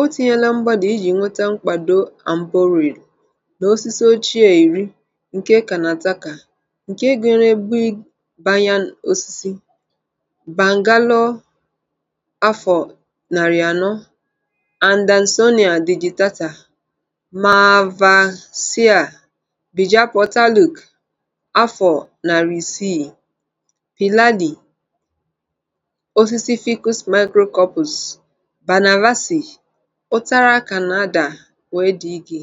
O tinyela mgbada iji nweta mkpado armboril na osisi ochie iri nke kanataka nke gụnyere Big Banyan osisi "Bangalore afọ narị anọ", Andansonia digitata, mavasia bijapotaluk afọ narị isii, pilali osisi "Ficus microcorpus Banavasi Ụtara ka na wee dị gị